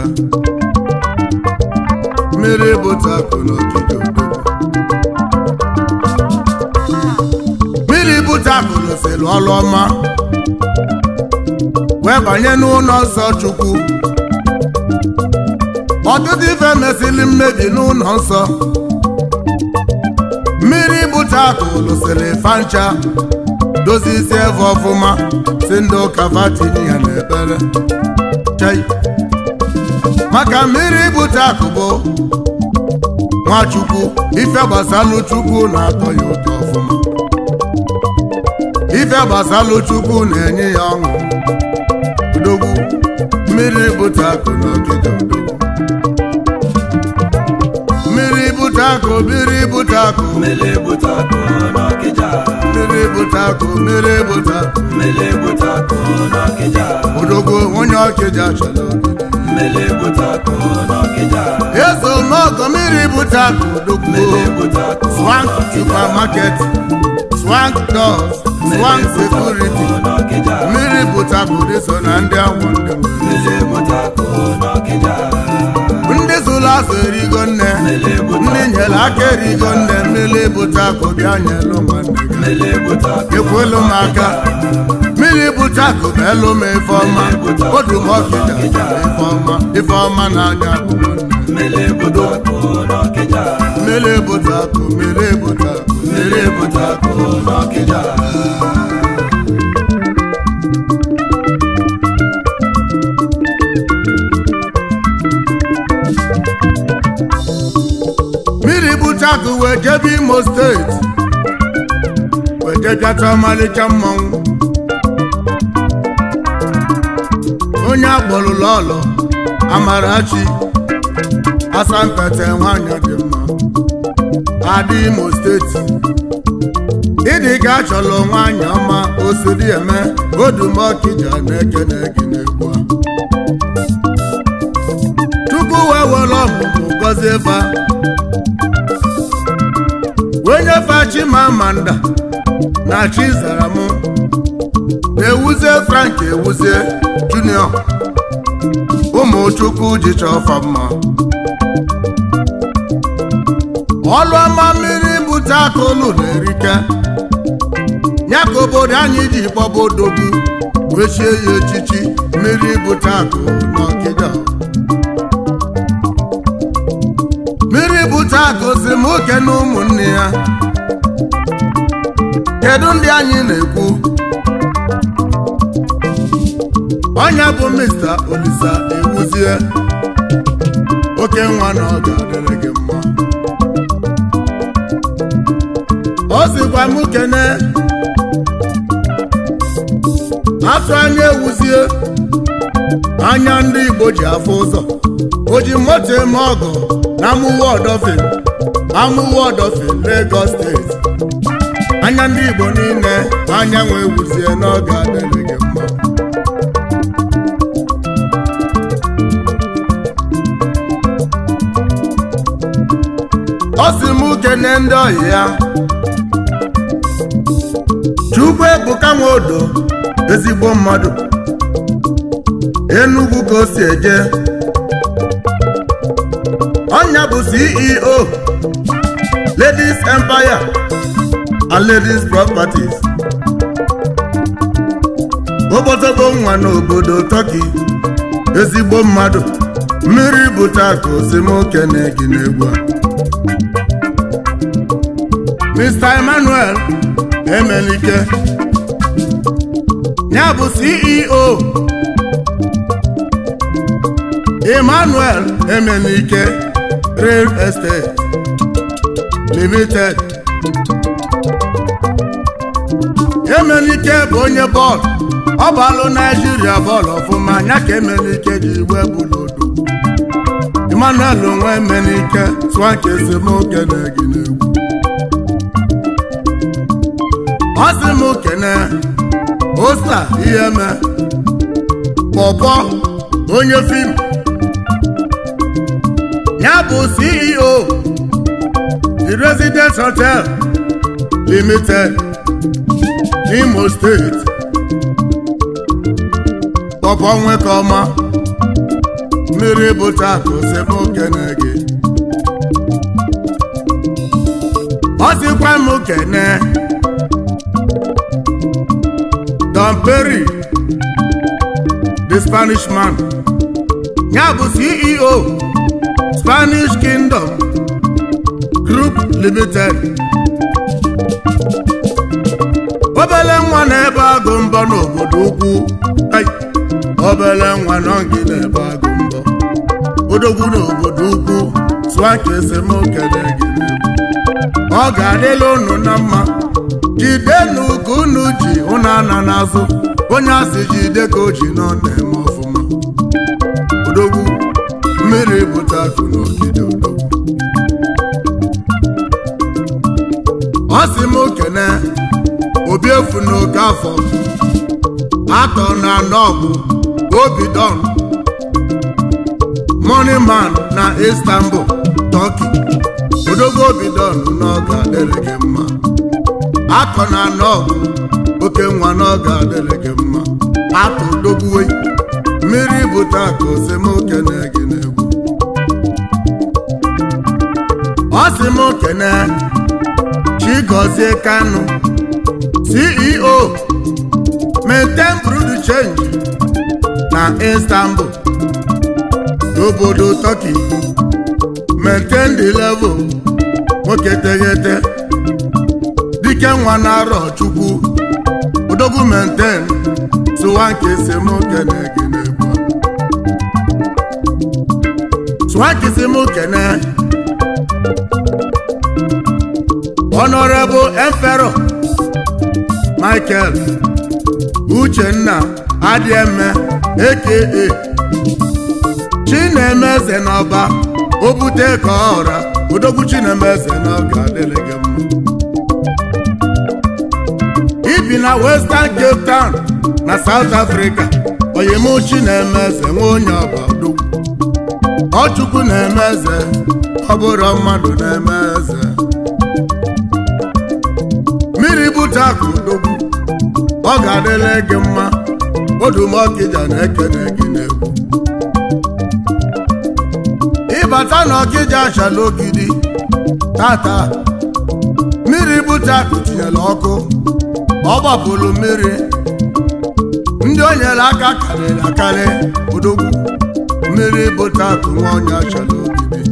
mmiri bụta akụ n'ogige mmiri bụta akụ n'osiri ọlụ ọma wee banye n'ụlọ nsọ chukwu ọtụtụ ife mesịrị mmebi n'ụlọ nsọ nta kụlụsịrị fancha dozie isi eve ọfụma si ndị ụka vatini ya n'ebere chai maka mmiri akụ akụbụ nwachukwu ife gbasalụ chukwu na-atọ ya ụtọ ọfụma ife chukwu na-enye ya ọṅụ odogwu mmiri bute akụ n'ogige odogwu butako mmiri butako mmiri butako n'ọkịja mmiri butako mmiri butako mmiri butako n'ọkịja odogwu onye ọkịja chọrọ mmiri butako n'ọkịja eso n'ọgọ mmiri butako odogwu swank supermarket swank doors swank security mmiri butako dị so na ndị anwụ ndị mmiri butako n'ọkịja azụ erigo nne ndị aka erigo nne mmiri bute akụ bịa nwanne gị ekwelu m aka mmiri bute akụ elu m ife ọma odu m ọkịja ife ife ọma na-aga mmiri akụ mmiri bute akụ mmiri bute Chicago wee jebe Imo steeti wee jebiata ọmalịcha mmanwụ onye akpọrụla ọlọ Amarachi Asampete nwanyị dị mma adị Imo steeti ịdị ka achọrọ nwanyị ọma osiri eme Odumọkija na-ekene gị n'egwu a Chukwu wee were ọmụmụ gọzie ba onye fachimamanda na Chizaram na-ewuzie Frank ewuzie junior ụmụchukwu ji chọfa mma ọlụọma mmiri bute akụlụ na-erike ya ka obodo anyị ji gbaba gị wechie ya echichi mmiri bute akụ na ọkịda oke na ụmụnne ya kedu ndị anyị na-ekwu onye bụ Mr. Olisa ewuzie oke nwa na ọ adịrị gị mma o sikwa m kene atụ anya ewuzie anya ndị Igbo ji afọ ụzọ o ji moto eme ọgụ na mụwa ọdọfe si Lagos steeti anya ndị Igbo niile anyanwụ ewuzie n'oge adịghị gị mma ọ sị m kene ndị ohi ya Chukwu Ebuka odo ezigbo mmadụ Enugu ka o si eje ọnya bụ CEO ladies empire and ladies properties ụbọchọgo nwa n'obodo Turkey ezigbo mmadụ mmiri bụcha ka osimiri na-egi n'egwu Mr. Emmanuel Emelike ya bụ CEO Emmanuel Emelike Real Estate limited emenike bụ onye bọọlụ ọ bụ alụ naijiria bọọlụ ọfụma anya ka emenike ji igwe bụlodo emmanuel nwa emenike tụọ nke esemokwu na-egi n'egwu ọ sị m kene osa ihe me pọpọ onye fim ya bụ ceo residence hotel limited n'imo steeti pọpọ nwekọma mmiri bụta osebe okene gị ọ sịkwa m kene Don Perry the Spanish man ya bụ CEO Spanish Kingdom Group Limited obele nwa na-ebe agụ mbọ n'obodo ukwu obele nwa nọ gị na-ebe agụ mbọ odogwu n'obodo ukwu tụọ ka esemokele gị ọ ga-adịla unu na mma jidenu ka unu ji ụnụ ana n'azụ onye asị jide ka o ji nọ na-eme ọfụma odogwu mmiri bụta akụ n'ogige masị m okene obi efu n'oke afọ atọ na anọ bụ obidon money man na istanbul turkey odogo obidon n'oge adịrị gị mma atọ na anọ bụ oke nwa n'oge adịrị gị mma atọ dogbuwe mmiri bute akụ osimokene gị na egwu ọ sị m okene Chigozie Kanu CEO maintain brood change na Istanbul obodo Turkey maintain the level nwoke teghete dike nwa na-arọ Chukwu odogwu maintain tụwa nke esemokwu na-egene sụwa nke na Honorable Emperor Michael Uchenna Adieme aka Chinemeze n'ọba obute ka ọra odogwu Chinemeze n'ọga adịrị mma ibi na Western Cape Town na South Africa oyim Chinemeze nwa onye ọba odogwu Ọchukwu na emeze eze mmadụ na-eme ute akụ ndogbu ọ ga-adịla gị mma odumọkịja na-ekene gị n'egwu ịbata na ọkịja achala ogidi tata mmiri bute akụ tinyere ọkụ ọ gbapụrụ mmiri ndị o nyere aka karịrị akarị odogwu mmiri bute akụ nwa onye achala ogidi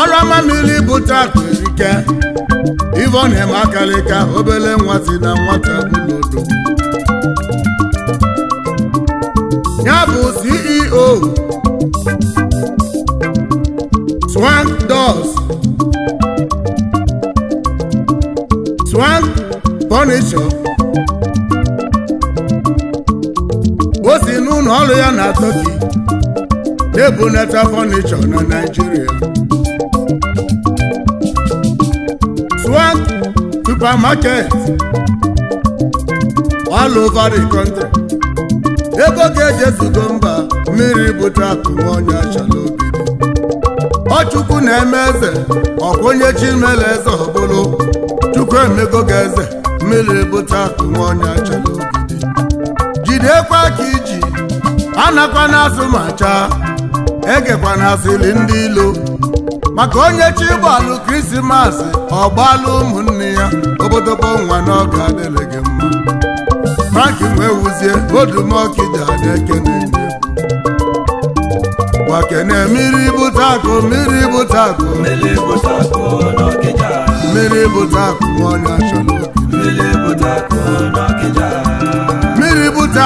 ọrụ ama mmiri bute akụ erike Ivonne Makalika obele si na nwata n'odo ya bụ CEO Swank Doors Swank Furniture o si n'ụlọ ọrụ ya na Turkey na-ebunata furniture na Naịjirịa. supermarket all over the country ego ga eje ezugo mba mmiri bụ trapụ onye achọrọ obi ọchukwu na-eme eze ọkwụnye chimele eze ọbụlụ chukwu emego ga eze mmiri bụ trapụ onye achọrọ obi jidekwa ka iji anakwa na asụ ma egekwa na ndị ilo maka onye chi gbalụ krismas ọ ụmụnne ya obodobo nwa na ọga adịrị gị mma maki wee wuzie odumọkija na-ekene wakene mmiri bụta akụ mmiri bụta akụ mmiri bụta akụ ọnya chọrọ mmiri bụta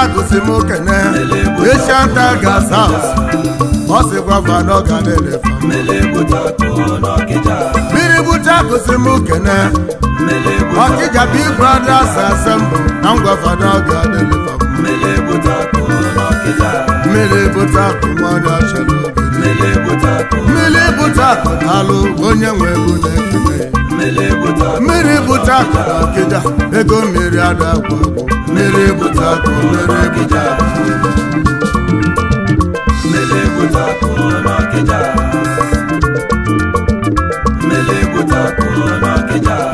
akụ si m kene eshanta gasa ọ sịkwa vanọ ga na mmiri bụta akụ si m kene ọkịja big A assemble na ngwa ọ ga mmiri bute akụ mmadụ achọrọ mmiri akụ onye nwe ego na-ekele mmiri bute akụ na ọkịja ego mmiri ada akwa mmiri bute akụ mmiri bute akụ Mele kuta kulo kija